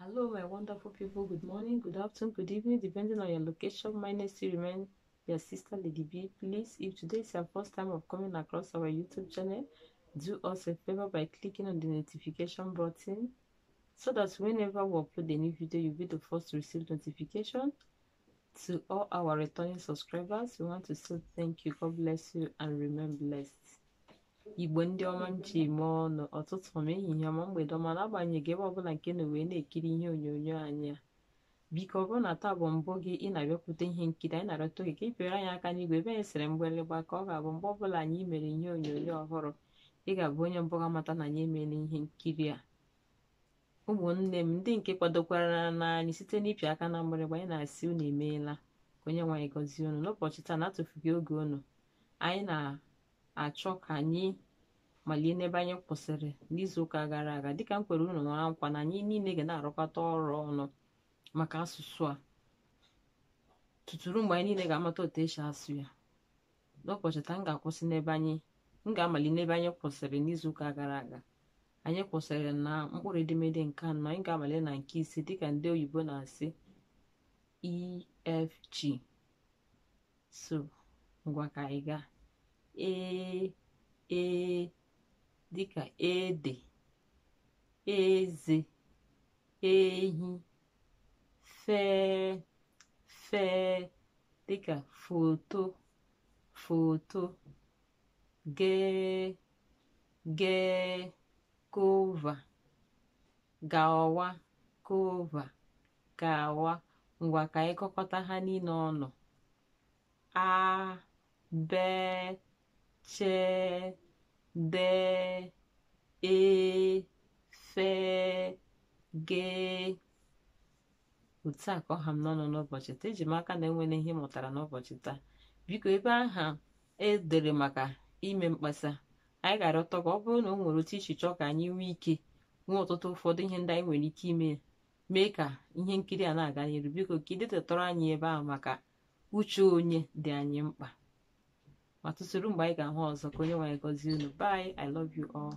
Hello, my wonderful people. Good morning, good afternoon, good evening, depending on your location. My name is remain your sister Lady B. Please, if today is your first time of coming across our YouTube channel, do us a favor by clicking on the notification button so that whenever we upload a new video, you'll be the first to receive notification. To all our returning subscribers, we want to say thank you. God bless you and remain blessed. igbo ndị ọma m ji mee ọnụ ọtụtụ ma ehihie ọma mgbede ọma na-agbanyeghị ebe ọbụla nke na wee na-ekiri ihe onyonyo anyị a biko ọ bụrụ na taa bụ mbụ gị ị na-abịakwute ihe nkiri anyị na-arịọta oge ka ị pịara anyị aka n'igwe ebe anyị sịrị mgbịrịgba ka ọ ga-abụ mgbe ọbụla anyị mere ihe onyonyo ọhụrụ ị ga-abụ onye mbụ ga-amata na anyị emeela ihe nkiri a ụmụnne m ndị nke kwadokwara na anyị site n'ịpị aka na mgbịrịgba anyị na-asị unu emeela ka onye nwaanyị gọzie unu n'ụbọchị taa na-atụfughị oge unu anyị na-achọ ka anyị malie n'ebe anyị kwụsịrị n'izuụka gara aga dịka m kwere unu nọrọ nkwa na anyị niile ga na-arụkọta ọrụ ọnụ maka asụsụ a tuturu mgbe anyị niile ga-amata otu esi asụ ya n'ụbọchị taa m ga-akwụsị n'ebe anyị m ga-amali n'ebe anyị kwụsịrị n'izuụka gara aga anyị kwụsịrị na mkpụrụ edemede nke anọ anyị ga-amali na nke ise dịka ndị oyibo na-asị efg so ngwa ka anyị gaa ee ee dịka ede eze ehi fee fee dịka foto foto gee gee kova gawa kova gawa ngwa ka anyị kọkọta ha niile ọnụ a bee chee de e fe ge otu a ka ọha m n'ọnụ n'ụbọchị taa eji m aka na enwere ihe mụtara n'ụbọchị taa biko ebe aha edere maka ime mkpesa anyị gara ụtọ ka ọ bụrụ na o nwere otu ichichọ ka anyị nwee ike nwee ọtụtụ ụfọdụ ihe ndị anyị nwere ike ime mee ka ihe nkiri a na-aga n'iru biko ka ị anyị ebe ahụ maka uche onye dị anyị mkpa ma tụsịrị mgbe anyị ga-ahụ ọzọ ka onye nwe gọzie unu bye i love you all